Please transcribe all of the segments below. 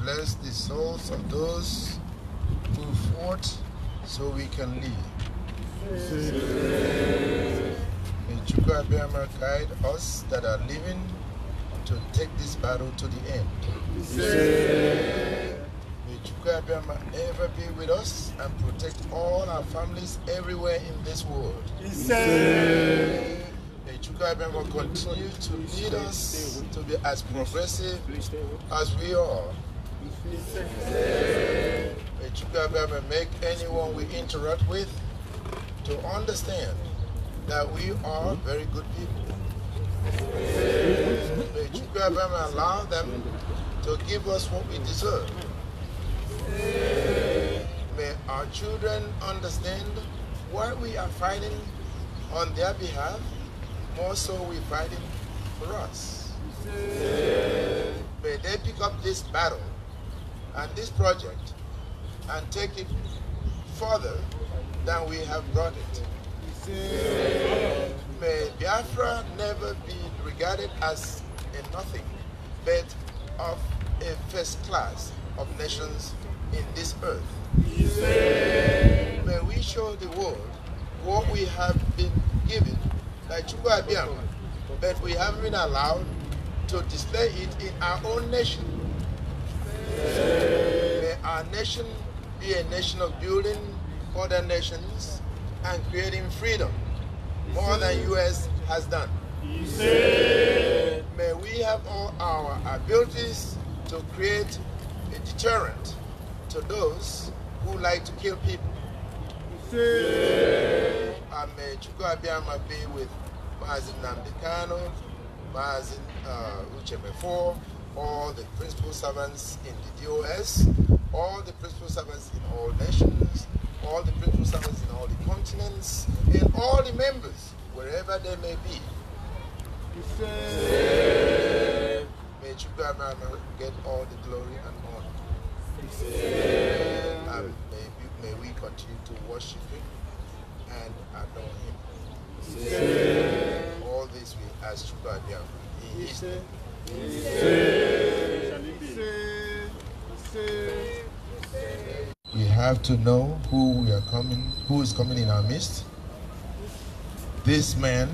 bless the souls of those who fought so we can live. May Chuka guide us that are living to take this battle to the end. May Chuka ever be with us and protect all our families everywhere in this world. May Chuka Abiyama continue to lead us to be as progressive as we are you Chukabia ever make anyone we interact with to understand that we are very good people. May Chukabia ever allow them to give us what we deserve. May our children understand why we are fighting on their behalf, more so we're fighting for us. May they pick up this battle and this project and take it further than we have brought it. May Biafra never be regarded as a nothing, but of a first class of nations in this earth. May we show the world what we have been given by Chukwu but we haven't been allowed to display it in our own nation. May our nation be a nation of building other nations and creating freedom more than U.S. has done. May we have all our abilities to create a deterrent to those who like to kill people. And may Chukwuabiama be with Mazin Mazin uh, all the principal servants in the DOS, all the principal servants in all nations, all the principal servants in all the continents, and all the members, wherever they may be. Say, may Chukwuemana get all the glory and honor. And may, may we continue to worship him and adore him. Say, all this we ask Chukwuemana in his name. We have to know who we are coming, who is coming in our midst. This man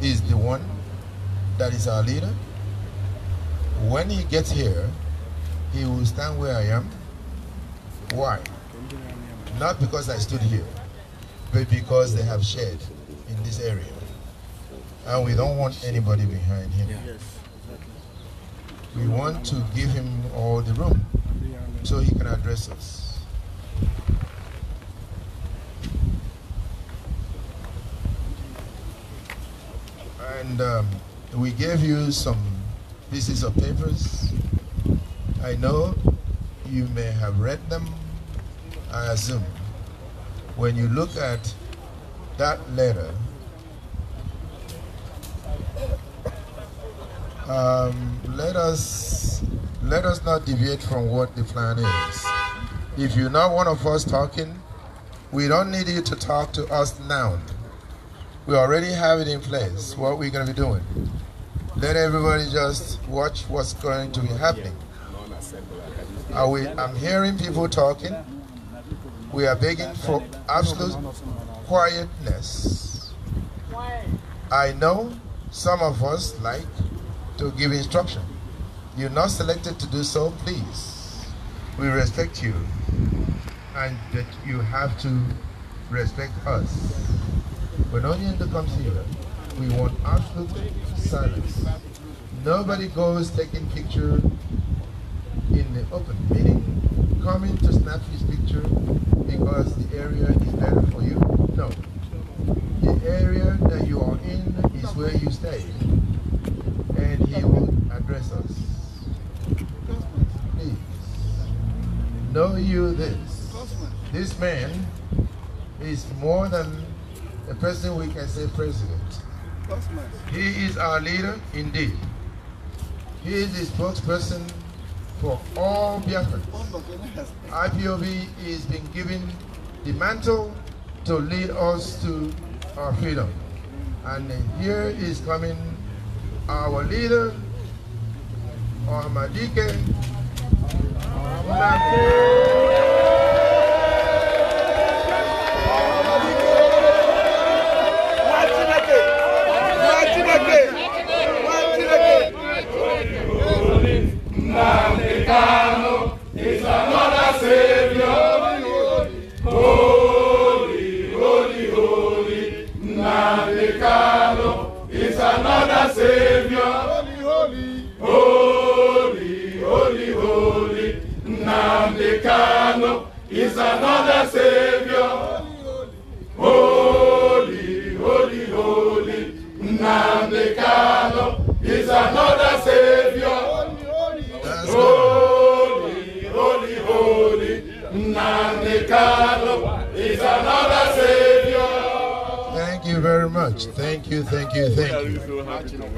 is the one that is our leader. When he gets here, he will stand where I am. Why? Not because I stood here, but because they have shared in this area. And we don't want anybody behind him. Yeah we want to give him all the room so he can address us. And um, we gave you some pieces of papers. I know you may have read them, I assume. When you look at that letter, Um, let us let us not deviate from what the plan is. If you're not one of us talking, we don't need you to talk to us now. We already have it in place. What we're going to be doing. Let everybody just watch what's going to be happening. We, I'm hearing people talking. We are begging for absolute quietness. I know some of us like to give instruction. You're not selected to do so, please. We respect you and that you have to respect us. When Onyendo comes here, we want absolute silence. Nobody goes taking picture in the open, meaning coming to snap his picture because the area is better for you. No. The area that you are in is where you stay he will address us. Please, know you this. This man is more than a person we can say president. He is our leader indeed. He is the spokesperson for all Biafrans. IPOB is being given the mantle to lead us to our freedom. And here is coming our leader, Ahmadike Munafi.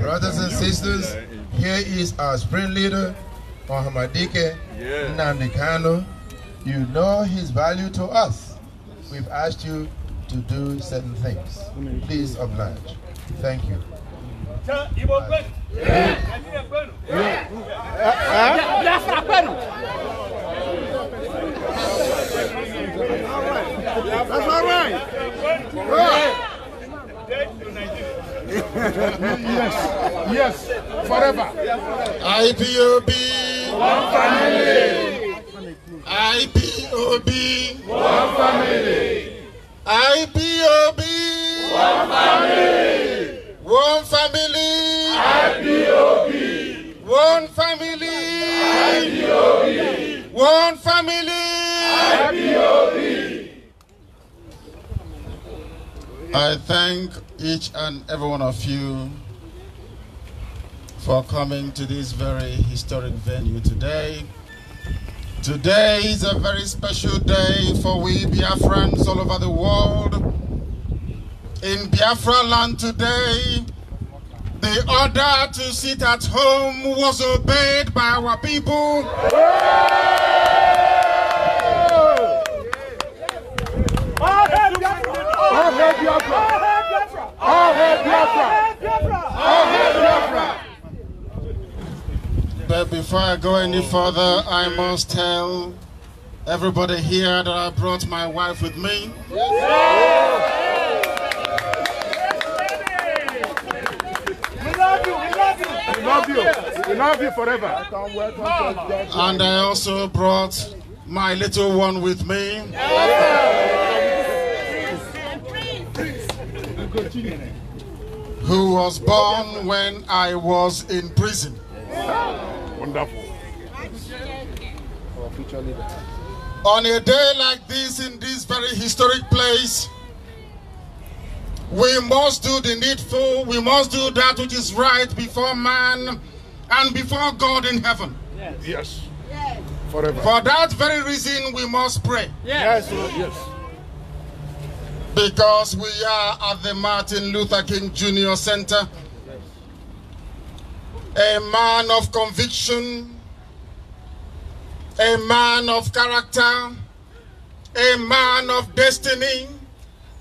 Brothers and sisters, here is our spring leader, Mohamadike yeah. Nandikano. You know his value to us. We've asked you to do certain things. Please oblige. Thank you. That's all right. That's all right yes, yes, forever. IPOB. One family. IPOB. One family. IPOB. One family. One family. IPOB. One family. IPOB. One family. IPOB. I thank each and every one of you for coming to this very historic venue today. Today is a very special day for we Biafrans all over the world. In Biafra land today, the order to sit at home was obeyed by our people. Yeah. Yeah. Yeah. But before I go any further, I must tell everybody here that I brought my wife with me. We love you. We love you We love you forever. and I also brought my little one with me who was born when I was in prison. Wonderful. On a day like this, in this very historic place, we must do the needful, we must do that which is right before man and before God in heaven. Yes. yes. Forever. For that very reason, we must pray. Yes. yes. yes because we are at the Martin Luther King Jr. Center. A man of conviction, a man of character, a man of destiny.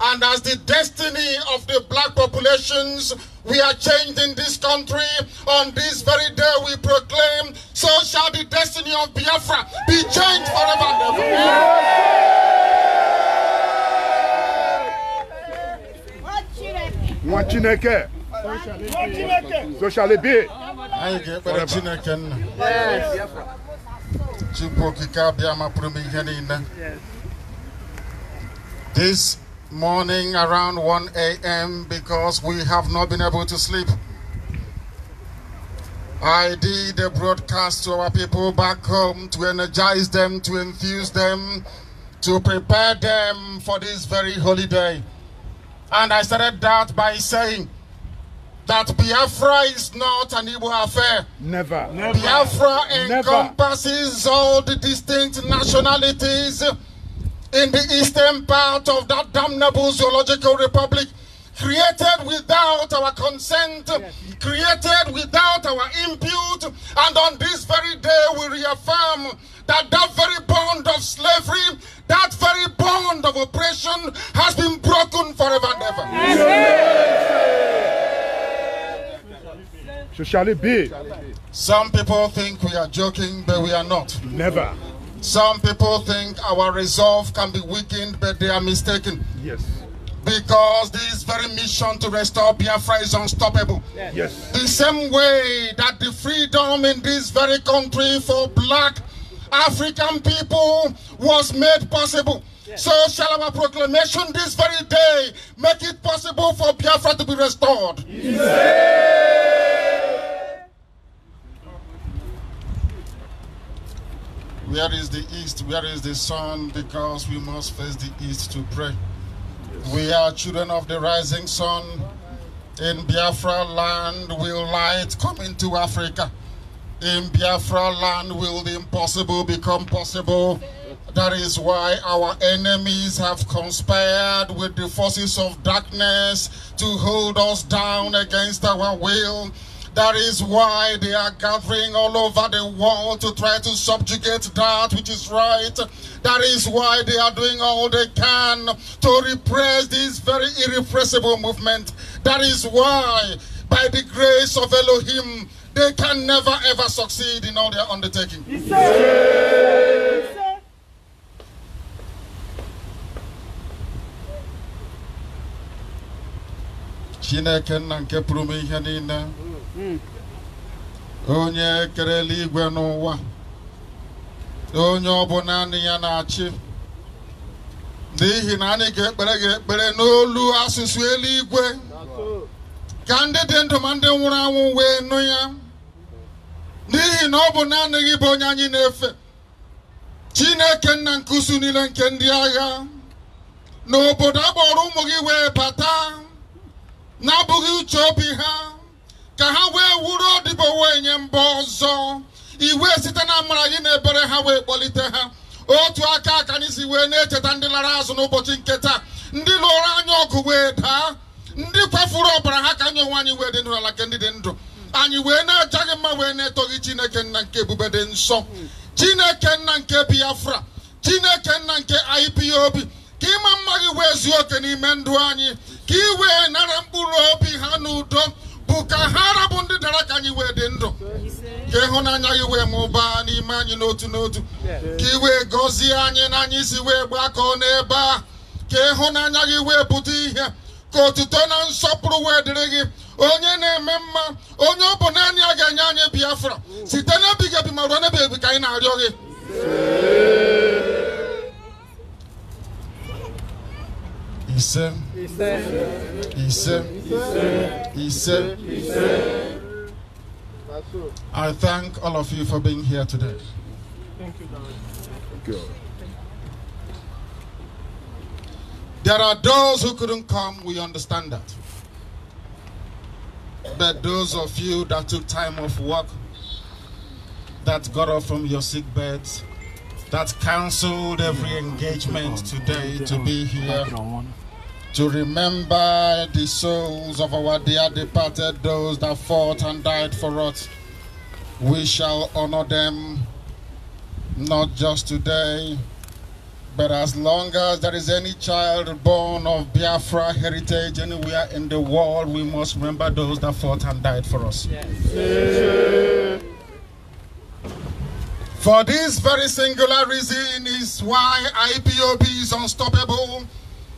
And as the destiny of the black populations we are changing this country, on this very day we proclaim, so shall the destiny of Biafra be changed forever and ever. Chineke so Chineke this morning around 1 a.m. because we have not been able to sleep. I did a broadcast to our people back home to energize them, to enthuse them, to prepare them for this very holy day. And I started that by saying that Biafra is not an Igbo affair. Never. Never. Biafra encompasses Never. all the distinct nationalities in the eastern part of that damnable zoological republic created without our consent, yes. created without our impute, and on this very day we reaffirm that that very bond of slavery, that very bond of oppression has been broken forever and ever. So shall it be. Some people think we are joking, but we are not. Never. Some people think our resolve can be weakened, but they are mistaken. Yes. Because this very mission to restore Biafra is unstoppable. Yes. yes. The same way that the freedom in this very country for black African people was made possible. Yes. So shall our proclamation this very day make it possible for Biafra to be restored. Yes. Where is the east? Where is the sun? Because we must face the east to pray. Yes. We are children of the rising sun. In Biafra land will light come into Africa. In Biafra land will the impossible become possible. That is why our enemies have conspired with the forces of darkness to hold us down against our will. That is why they are gathering all over the world to try to subjugate that which is right. That is why they are doing all they can to repress this very irrepressible movement. That is why, by the grace of Elohim, they can never ever succeed in all their undertaking. Chineke nna nke pụrụ m ihe niile onye kere igwe n'ụwa onye ọ bụ naanị ya na-achị n'ihi na anyị ga-ekpere gị ekpere n'olu asụsụ eluigwe ka ndị dị ndụ ma ndị nwụrụ anwụ wee nụ ya n'ihi na ọ bụ naanị gị bụ onye anyị na-efe Chineke nna nke usu niile nke ndị agha n'obodo akpọrọ ụmụ gị wee bata na-abụghị uche obi ha ka ha wee wuru wee nye mba ọzọ iwe site na amara gị na ebere ha wee kpọlite ha otu aka aka anyị si wee na-echeta ndị lara azụ n'ụbọchị nke taa ndị lụrụ anya ọgụ wee daa ndị kwafuru ọbara ha ka anyị onwe anyị wee dị n'ụlọ ala nke ndị dị ndụ anyị wee na gị mma wee na-etoghị chineke nna nke ebube dị nsọ chineke nna nke biafra chineke nna nke IPOB ka ịma mma gị wee zuo oke n'ime ndụ anyị ka ị wee nara mkpụrụ obi ha n'udo bụ ka ha rabụ ndị dara ka anyị wee dị ndụ ka ịhụnanya gị wee mụbaa n'ime anyị n'otu n'otu ka ị wee gọzie anyị na anyị si wee gbakọọ n'ebe a ka ịhụnanya gị wee pụta ihe ka otuto na nsọpụrụ wee dịrị gị onye na-eme mma onye ọ bụ naanị ga-enye anyị biafra site ma ruo ebi ka anyị na-arịọ gị ise ise ise ise I thank all of you for being here today. Thank you. There are those who couldn't come, we understand that. But those of you that took time off work, that got up from your sick beds, that cancelled every engagement today to be here, to remember the souls of our dear departed, those that fought and died for us. We shall honor them not just today, but as long as there is any child born of Biafra heritage anywhere in the world, we must remember those that fought and died for us. Yes. For this very singular reason is why IPOB is unstoppable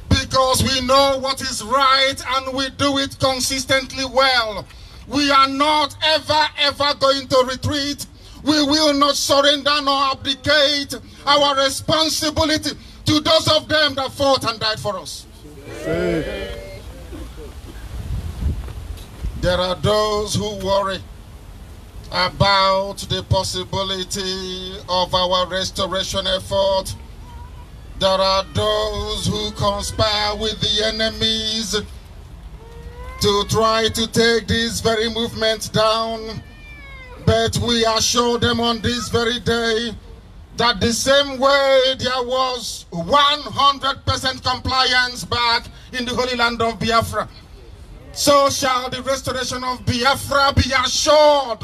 because we know what is right and we do it consistently well. We are not ever, ever going to retreat we will not surrender nor abdicate our responsibility to those of them that fought and died for us. There are those who worry about the possibility of our restoration effort. There are those who conspire with the enemies to try to take this very movement down. But we assure them on this very day that the same way there was 100% compliance back in the Holy Land of Biafra, so shall the restoration of Biafra be assured.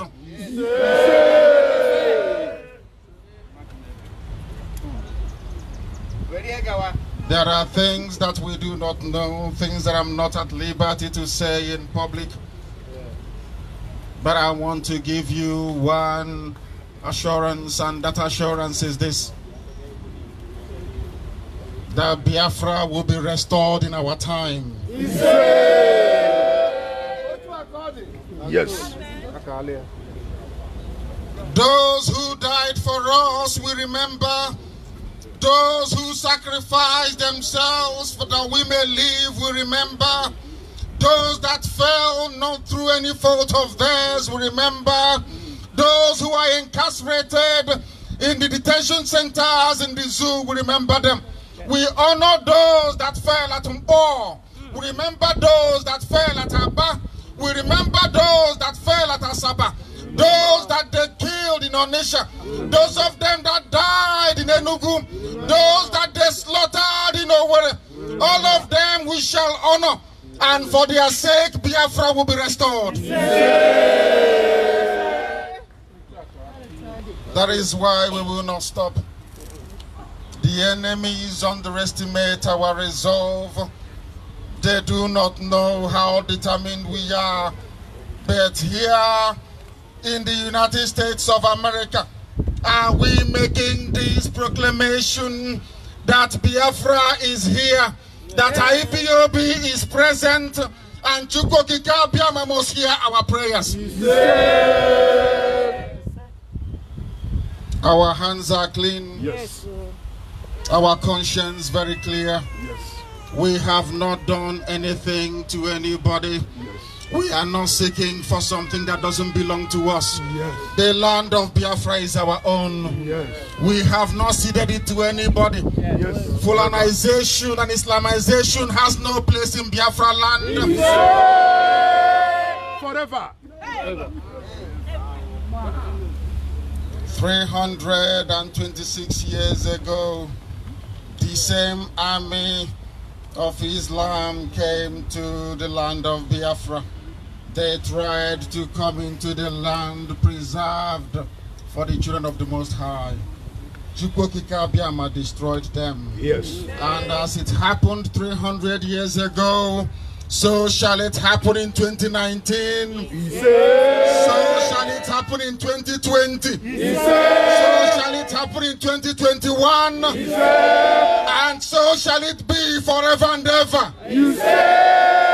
There are things that we do not know, things that I'm not at liberty to say in public. But I want to give you one assurance, and that assurance is this that Biafra will be restored in our time. Yes. Those who died for us, we remember. Those who sacrificed themselves for that we may live, we remember. Those that fell not through any fault of theirs, we remember. Those who are incarcerated in the detention centers, in the zoo, we remember them. We honor those that fell at Mbo. We remember those that fell at Abba. We remember those that fell at Asaba. Those that they killed in Onisha. Those of them that died in Enugu. Those that they slaughtered in Owerri. All of them we shall honor. And for their sake, Biafra will be restored. That is why we will not stop. The enemies underestimate our resolve. They do not know how determined we are. But here in the United States of America, are we making this proclamation that Biafra is here that IPOB is present and Chukoki Biama must hear our prayers. Yes. Our hands are clean. Yes. Our conscience very clear. Yes. We have not done anything to anybody. We are not seeking for something that doesn't belong to us. Yes. The land of Biafra is our own. Yes. We have not ceded it to anybody. Yes. Fulanization and Islamization has no place in Biafra land. Yes. Forever. Forever. 326 years ago, the same army of Islam came to the land of Biafra. They tried to come into the land preserved for the children of the Most High. Chukwokikabiama destroyed them. Yes. And as it happened 300 years ago, so shall it happen in 2019. Yes. So shall it happen in 2020. Yes. So shall it happen in 2021. Yes. And so shall it be forever and ever.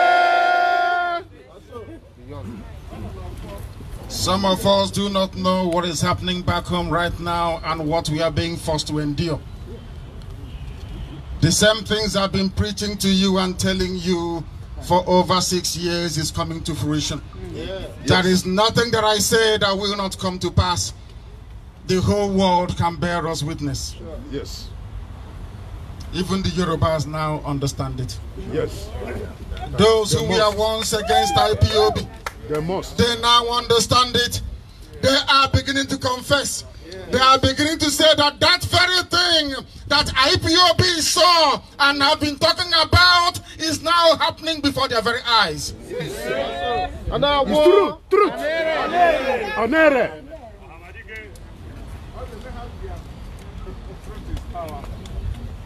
Some of us do not know what is happening back home right now and what we are being forced to endure. The same things I've been preaching to you and telling you for over six years is coming to fruition. Yeah. There is nothing that I say that will not come to pass. The whole world can bear us witness. Sure. Yes. Even the Yorubas now understand it. Yes. Those who were once against IPOB, they must. They now understand it. They are beginning to confess. They are beginning to say that that very thing that IPOB saw and have been talking about is now happening before their very eyes. it's true,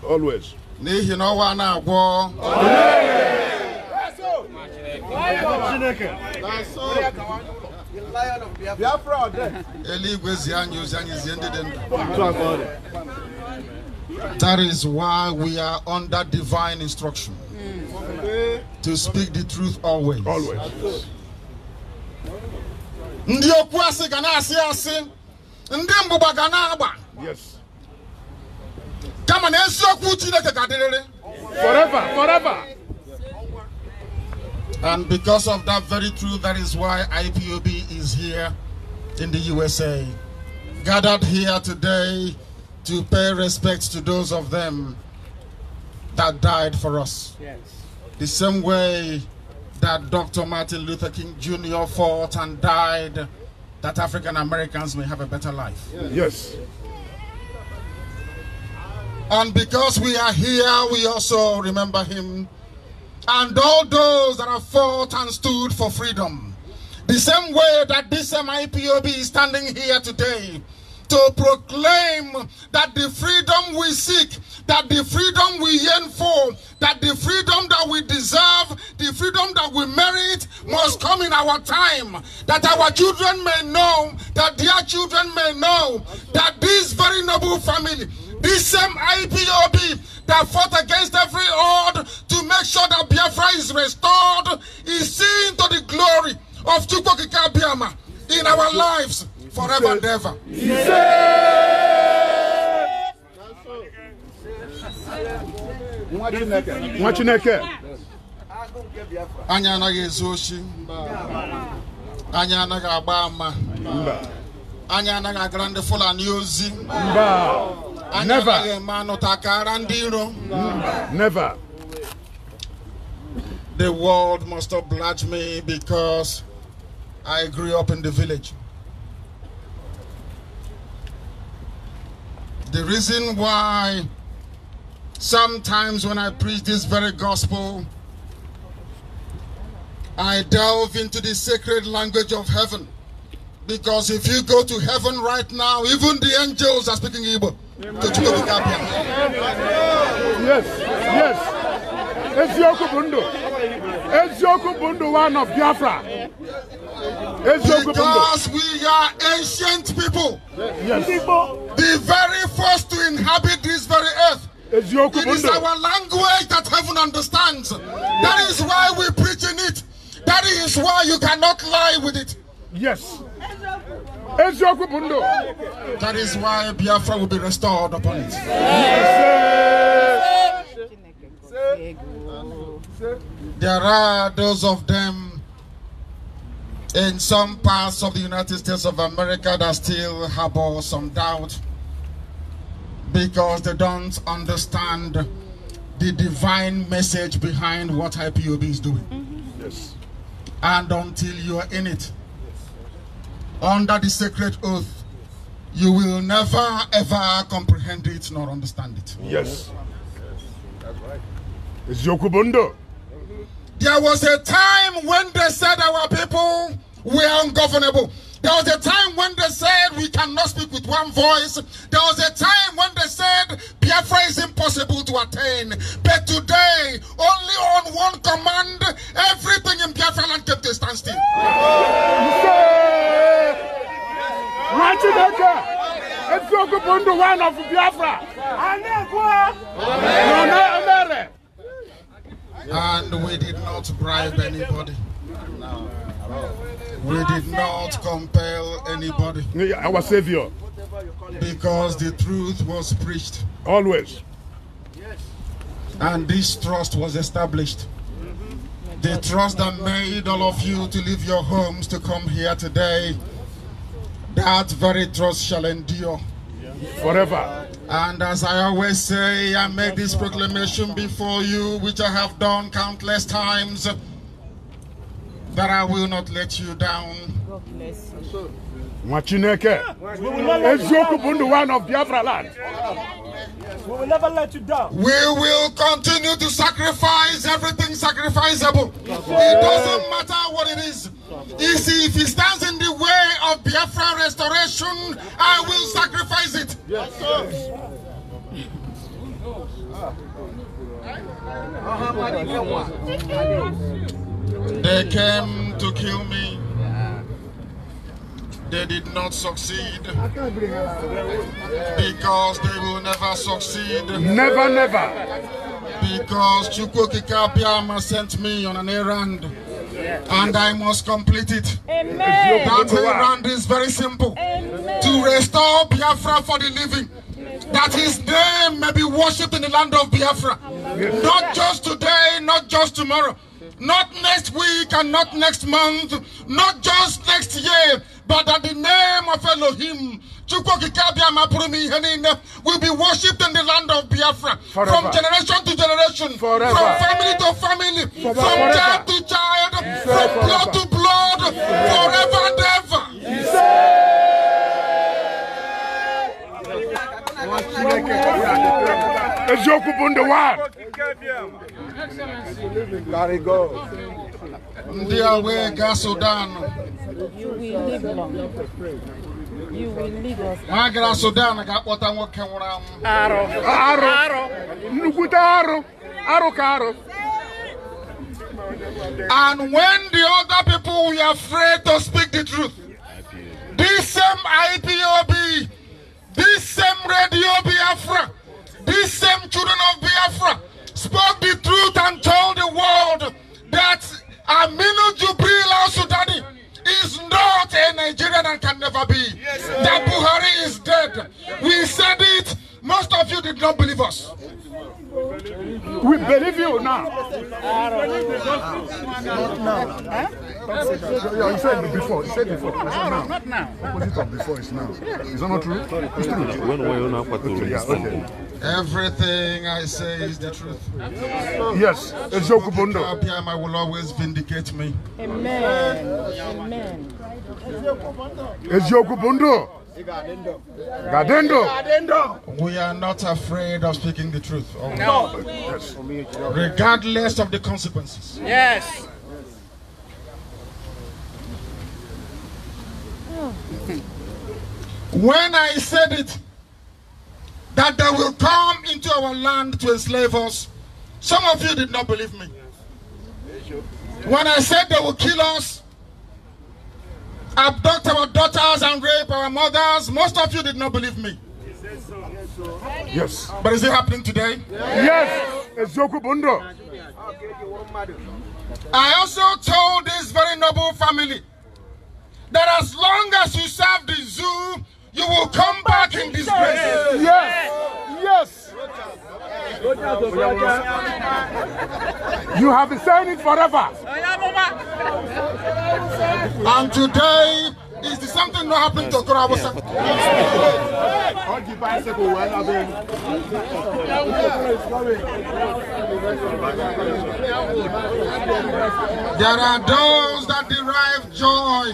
Always. That is why we are under divine instruction to speak the truth always. always. ndị asi asị ndị kama forever forever and because of that very truth, that is why IPOB is here in the USA. Gathered here today to pay respect to those of them that died for us. Yes. The same way that Dr. Martin Luther King Jr. fought and died that African Americans may have a better life. Yes. yes. And because we are here, we also remember him and all those that have fought and stood for freedom. The same way that this MIPOB is standing here today to proclaim that the freedom we seek, that the freedom we yearn for, that the freedom that we deserve, the freedom that we merit must come in our time. That our children may know, that their children may know that this very noble family, this same IPOB that fought against every odd to is restored is seen to the glory of Chukwokika Biama in our lives forever and ever. nwa Chineke anyị anaghị ezu oshi Anya anaghị agba ama Anya anaghị agara ndị Fulani ozi Anya anaghị eme anụta kara ndị iro The world must oblige me because I grew up in the village. The reason why sometimes when I preach this very gospel, I delve into the sacred language of heaven. Because if you go to heaven right now, even the angels are speaking Igbo. Yes, yes eziokwu bụ ndụ eziokwu one of biafra because we are ancient people yes. the very first to inhabit this very earth it is our language that heaven understands that is why we preach in it that is why you cannot lie with it yes eziokwu bụ that is why biafra will be restored upon it yes. There are those of them in some parts of the United States of America that still harbor some doubt because they don't understand the divine message behind what IPOB is doing. Mm -hmm. Yes. And until you are in it, under the sacred oath, you will never ever comprehend it nor understand it. Yes. There was a time when they said our people were ungovernable. There was a time when they said we cannot speak with one voice. There was a time when they said Biafra is impossible to attain. But today, only on one command, everything in Biafra land kept a standstill. Biafra. And we did not bribe anybody. No. We did not compel anybody. Our Savior. Because the truth was preached. Always. And this trust was established. The trust that made all of you to leave your homes to come here today, that very trust shall endure forever. And as I always say, I make this proclamation before you, which I have done countless times, that I will not let you down. God bless you. one of Biafra land. We will never let you down. We will continue to sacrifice everything sacrificable. It doesn't matter what it is see, if he stands in the way of Biafra restoration, I will sacrifice it. Yes. They came to kill me. They did not succeed because they will never succeed. Never, never. Because Chukwokika Biama sent me on an errand. And I must complete it. Amen. That errand is very simple. Amen. To restore Biafra for the living. That his name may be worshipped in the land of Biafra. Not just today, not just tomorrow. Not next week and not next month. Not just next year. But that the name of Elohim will be worshipped in the land of Biafra Forever. from generation to generation, Forever. from family to family, Forever. from child to child, yes. from blood to blood, yes. forever and ever. Eziokwu bụ ndị wad. Ndị a wee gaa Sudan. You will lead us. Nwa gara Sudan ga-akpọta nwoke nwụrụ anwụ. Arụ. Arụ. Arụ. Nnukwute arụ. Arụ ka And when the other people were afraid to speak the truth, this same IPOB, this same Radio Biafra, this same children of Biafra spoke the truth and told the world that Aminu Jubril al-Sudani is not a Nigerian and can never be. Yes, that Buhari is dead. We said it. Most of you did not believe us. We believe you now. Not now. You said it before. You said it before. Not now. Opposite of before is now. Is that not true? It's true. When were you not okay, yeah, okay. Everything I say is the truth. Yes, it's Yokubundo. I will always vindicate me. Amen. Amen. It's Yokubundo. Gadendo. We are not afraid of speaking the truth. Oh, no. Yes. Regardless of the consequences. Yes. When I said it, that they will come into our land to enslave us. Some of you did not believe me. When I said they will kill us, abduct our daughters and rape our mothers, most of you did not believe me. Yes. But is it happening today? Yes. yes. I also told this very noble family that as long as you serve the zoo you will come back in disgrace. Yes. Yes. You have been saying it forever. And today is something that happened to us. bicycle There are those that derive joy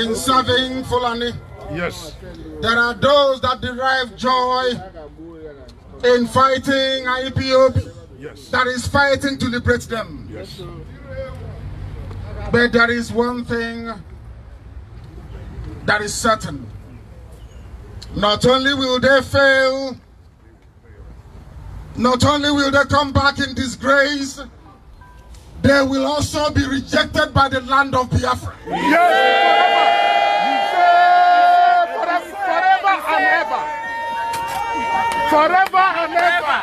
in serving Fulani. Yes. There are those that derive joy in fighting IPOB. Yes. That is fighting to liberate them. Yes. But there is one thing that is certain. Not only will they fail, not only will they come back in disgrace, they will also be rejected by the land of Biafra. Yes! and ever. Forever and ever.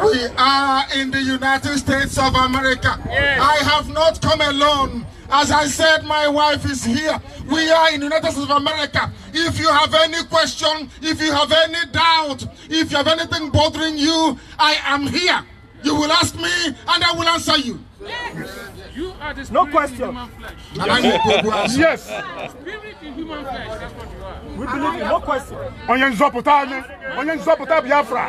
We are in the United States of America. Yes. I have not come alone. As I said, my wife is here. We are in the United States of America. If you have any question, if you have any doubt, if you have anything bothering you, I am here. You will ask me and I will answer you. Yes. You are the no question. Yes. spirit in human flesh. yes we believe in no question. onye nzọpụta onye nzọpụta biafra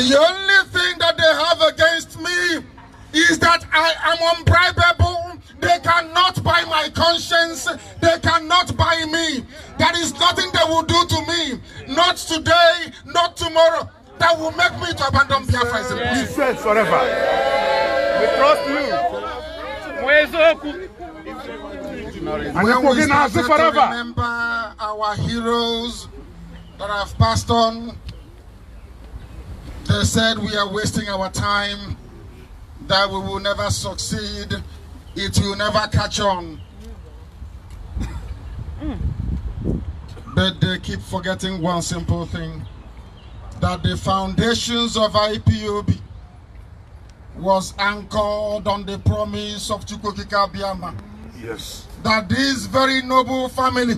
The only thing that they have against me is that I am unbribable. They cannot buy my conscience. They cannot buy me. There is nothing they will do to me. Not today, not tomorrow. That will make me to abandon Biafra. He says forever. We trust you. And when we start to remember our heroes that have passed on, they said we are wasting our time, that we will never succeed, it will never catch on. But they keep forgetting one simple thing, that the foundations of IPOB was anchored on the promise of Chukwokika Biama. Yes that this very noble family,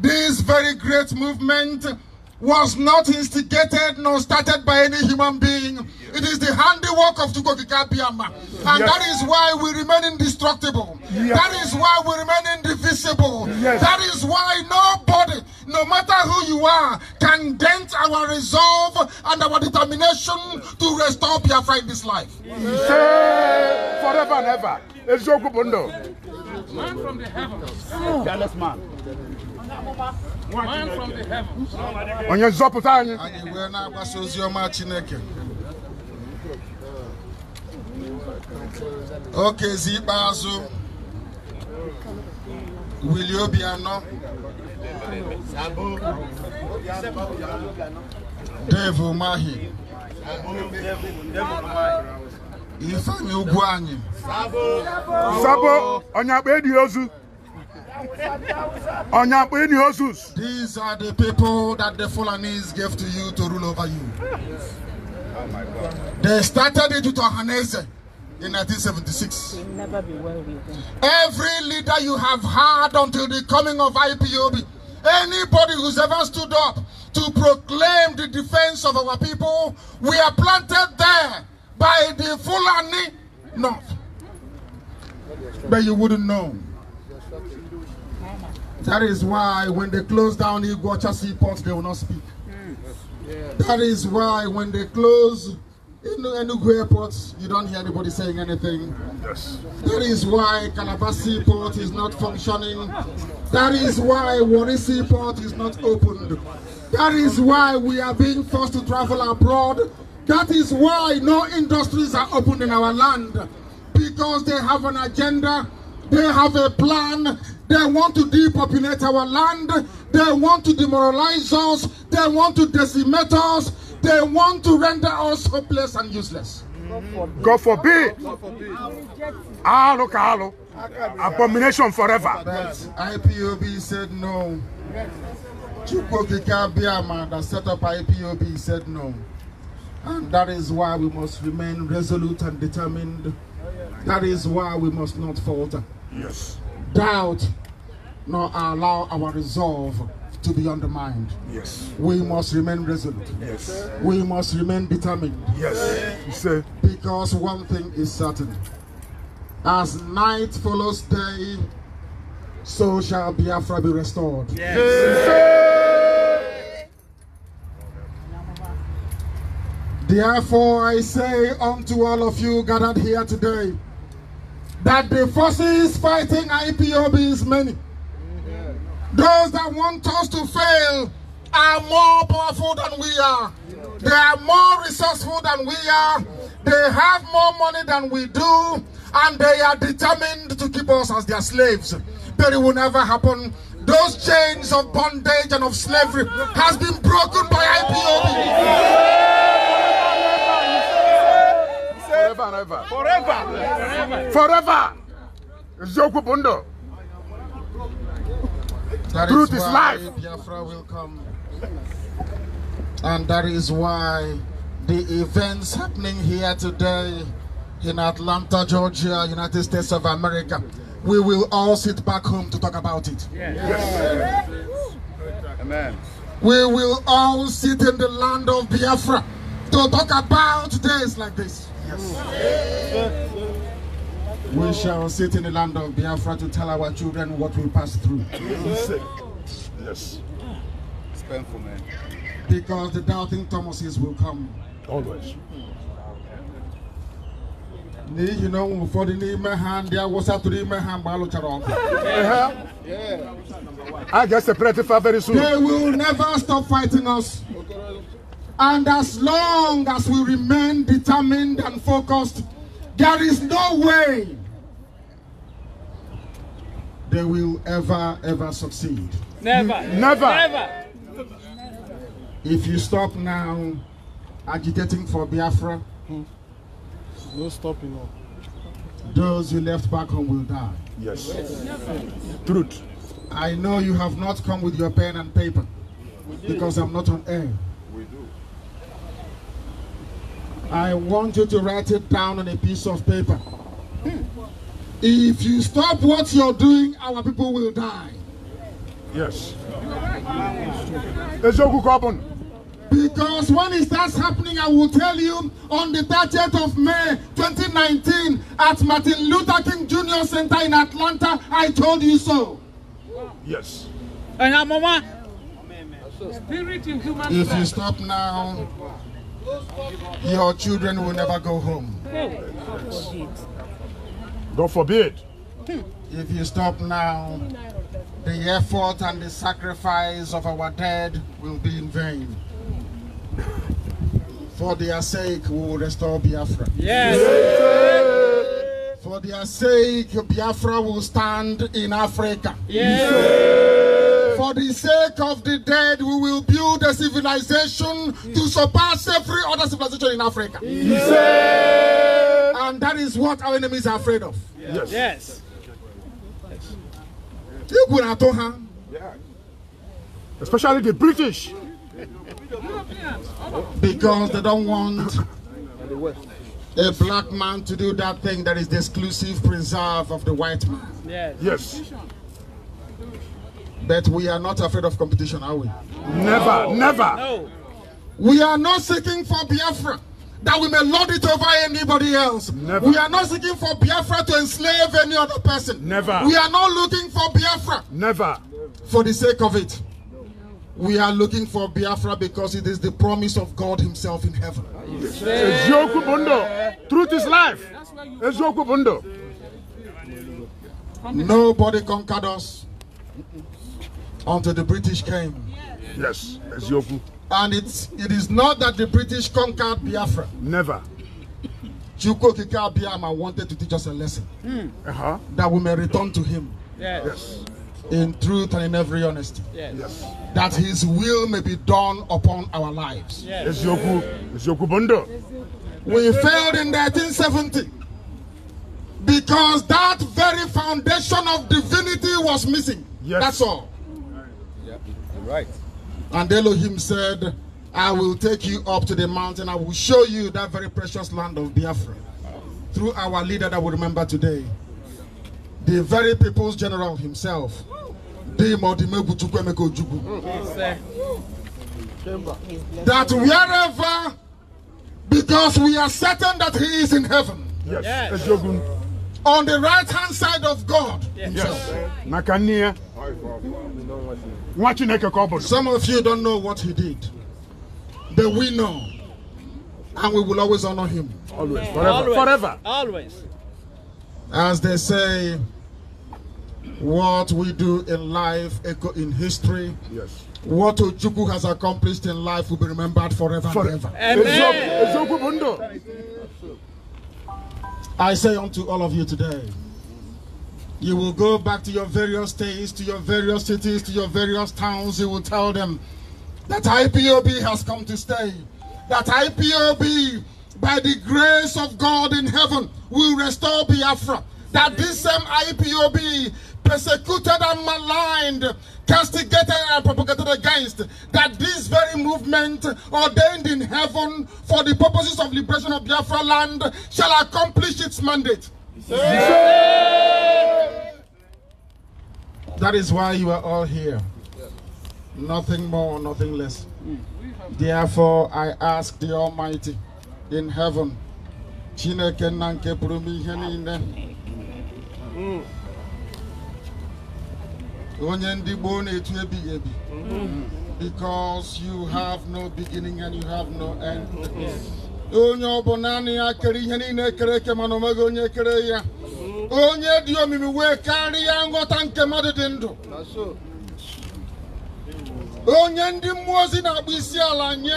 this very great movement was not instigated nor started by any human being. It is the handiwork of Tukokikabiyama. And yes. that is why we remain indestructible. Yes. That is why we remain indivisible. Yes. That is why nobody, no matter who you are, can dent our resolve and our determination to restore Biafra in this life. Forever and ever. Oh. Onye nzọpụta anyị. Anyị wee na-agbasa ozi ọma Chineke. Okezi ikpeazụ. Wili Obianọ. Dave mahi ife ugwu anyị sabo onye edi ozu onye edi ozu these are the people that the Fulanis gave to you to rule over you they started it with Ohaneze in 1976 every leader you have had until the coming of IPOB anybody who's ever stood up to proclaim the defense of our people we are planted there by the Fulani North. But you wouldn't know. That is why when they close down Iguacha seaport, they will not speak. That is why when they close in Enugu airport, you don't hear anybody saying anything. Yes. That is why Calabasas seaport is not functioning. That is why Warisi seaport is not opened. That is why we are being forced to travel abroad that is why no industries are opened in our land because they have an agenda, they have a plan, they want to depopulate our land, they want to demoralize us, they want to decimate us, they want to render us hopeless and useless. God forbid. God forbid. ah, kahalo. Abomination forever. But IPOB said no. Chukwokika Biama that set up IPOB said no. And that is why we must remain resolute and determined. That is why we must not falter. Yes. Doubt nor allow our resolve to be undermined. Yes. We must remain resolute. Yes. We must remain determined. Yes. Because one thing is certain. As night follows day, so shall Biafra be restored. Yes. yes. Therefore I say unto all of you gathered here today, that the forces fighting IPOB is many. Those that want us to fail are more powerful than we are. They are more resourceful than we are. They have more money than we do. And they are determined to keep us as their slaves. But it will never happen. Those chains of bondage and of slavery has been broken by IPOB. and ever. Forever. Forever. Forever. Eziokwu Truth is life. Biafra will come. And that is why the events happening here today in Atlanta, Georgia, United States of America, we will all sit back home to talk about it. yes. yes. Amen. We will all sit in the land of Biafra to talk about days like this. Yes. We shall sit in the land of Biafra to tell our children what we passed through. Yes. It's painful, man. Because the doubting Thomases will come. Always. n'ihi na ọnwụ ụfọdụ n'ime ha ndị awụsa tụrụ ime ha mgbe a lụchara uh-huh. ọgụ I get separated very soon. They will never stop fighting us. And as long as we remain determined and focused, there is no way they will ever, ever succeed. Never. Never. Never. If you stop now agitating for Biafra, no stopping. No. Those who left back home will die. Yes. yes. Truth. I know you have not come with your pen and paper because I'm not on air. We do. I want you to write it down on a piece of paper. Hmm. If you stop what you're doing, our people will die. Yes. Because when it starts happening, I will tell you on the 30th of May 2019 at Martin Luther King Jr. Center in Atlanta, I told you so. Yes. And Mama, spirit in human If you stop now, your children will never go home. God forbid. forbid. If you stop now, the effort and the sacrifice of our dead will be in vain. For their sake, we will restore Biafra. Yes. yes. For their sake, Biafra will stand in Africa. Yes. yes. For the sake of the dead, we will build a civilization to surpass every other civilization in Africa. And that is what our enemies are afraid of. Yes. yes. yes. Especially the British. Because they don't want a black man to do that thing that is the exclusive preserve of the white man. Yes. yes. But we are not afraid of competition, are we? Never, no. never. No. We are not seeking for Biafra that we may lord it over anybody else. Never. We are not seeking for Biafra to enslave any other person. Never. We are not looking for Biafra. Never. For the sake of it. We are looking for Biafra because it is the promise of God himself in heaven. Truth is life. Nobody conquered us until the British came. Yes, yes. And it's, it is not that the British conquered Biafra. Never. Chuko Kika Biama wanted to teach us a lesson. Mm. Uh -huh. That we may return to him. Yes. yes. In truth and in every honesty. Yes. yes. That his will may be done upon our lives. Yes. Yes. Yes. Yes. We failed in 1970 because that very foundation of divinity was missing. Yes. That's all. Right. And Elohim said, I will take you up to the mountain. I will show you that very precious land of Biafra. Through our leader that we remember today. The very people's general himself. That wherever, because we are certain that he is in heaven. Yes. yes on the right hand side of God. Yes. yes. a yes. Some of you don't know what he did. But we know, And we will always honor him. Always. Forever. Always. Forever. Always. As they say, what we do in life echo in history. Yes. What Ojuku has accomplished in life will be remembered forever, forever. and ever. Amen. I say unto all of you today, you will go back to your various states, to your various cities, to your various towns. You will tell them that IPOB has come to stay. That IPOB, by the grace of God in heaven, will restore Biafra. That this same IPOB persecuted and maligned, castigated and propagated against, that this very movement ordained in heaven for the purposes of liberation of Biafra land shall accomplish its mandate. Yeah. That is why you are all here. Nothing more, nothing less. Therefore, I ask the Almighty in heaven, Chineke nanke onye ndị gboo na etu ebighị ebi because you have no beginning and you have no end onye ọ bụ naanị ya kere ihe niile ekere eke mana omeghị onye kere ya onye dị omimi wee karịa nghọta nke mmadụ dị ndụ onye ndị mmụọ ozi na-akpụ isi ala nye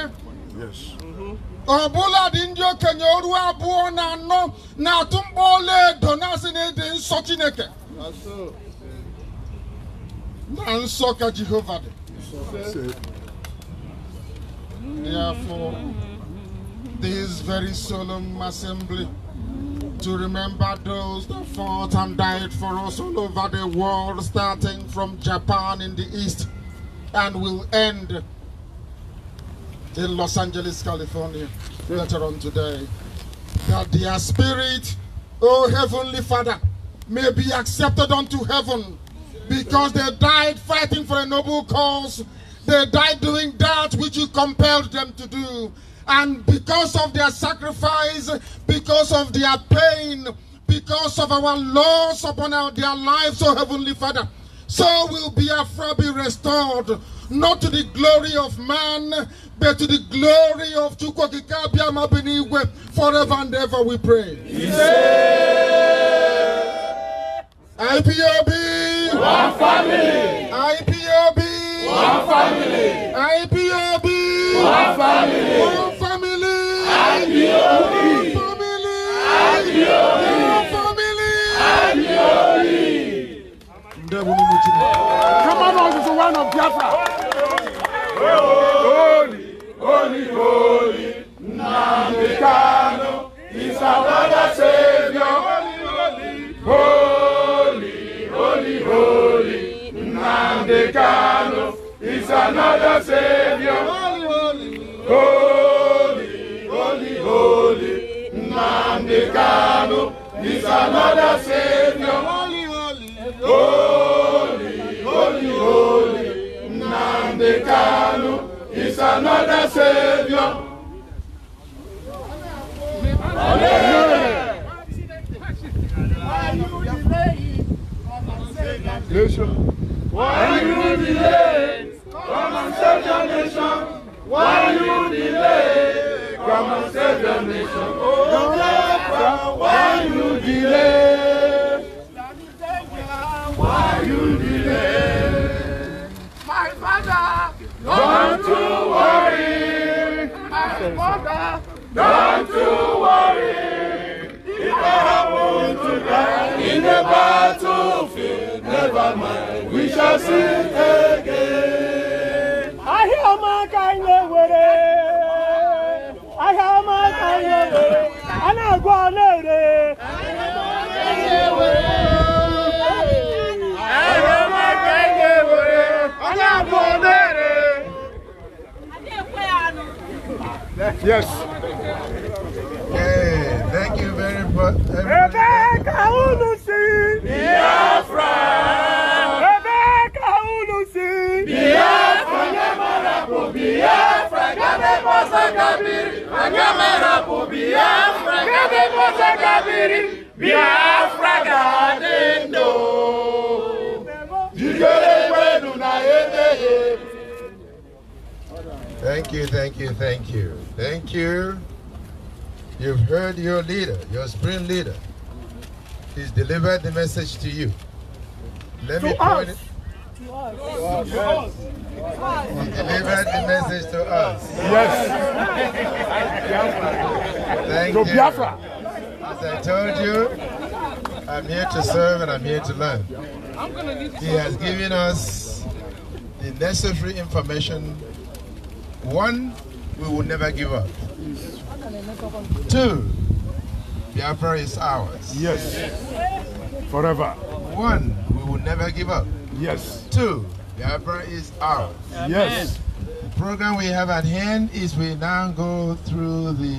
ọ bụla dị ndị okenye oru abụọ na anọ na-atụ mkpọ ọlaedo na-asị na ịdị nsọ Chineke na nsọ ka Jehovah, therefore this very solemn assembly to remember those that fought and died for us all over the world, starting from Japan in the east, and will end in Los Angeles, California, later on today. That their spirit, O oh Heavenly Father, may be accepted unto heaven because they died fighting for a noble cause. They died doing that which you compelled them to do. And because of their sacrifice, because of their pain, because of our loss upon our, their lives, O oh Heavenly Father, so will be afra be restored, not to the glory of man, but to the glory of Chukwokikabia Mabiniwe, forever and ever we pray. Yeah. IPOB! One family. IPOB. One family. IPOB. One family. One family. IPOB. One family. IPOB. One family. IPOB. Ndebo ni mutima. Come on, this is the one of Biafra. Holy, holy, holy, Namikano is our Savior. holy, holy. Nnamdi Kanu is another savior. Holy, holy, holy, holy. Nnamdi is another savior. Holy, holy, holy, holy, holy. is another savior. Nation. Why? Chile! Yes. Hey, thank you very much. Rebecca Unusi. Rebecca Thank you, thank you, thank you. Thank you. You've heard your leader, your spring leader. He's delivered the message to you. Let to me point us. it. To us. To us. us. He delivered the message to us. Yes. thank to you. As I told you, I'm here to serve and I'm here to learn. He has given us the necessary information one, we will never give up. Two, prayer is ours. Yes. Forever. One, we will never give up. Yes. Two, prayer is ours. Yes. The program we have at hand is we now go through the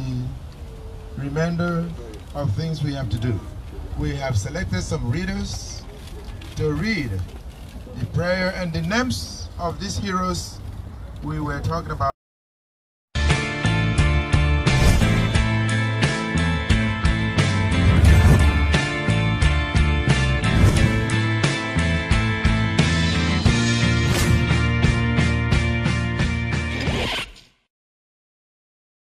remainder of things we have to do. We have selected some readers to read the prayer and the names of these heroes we were talking about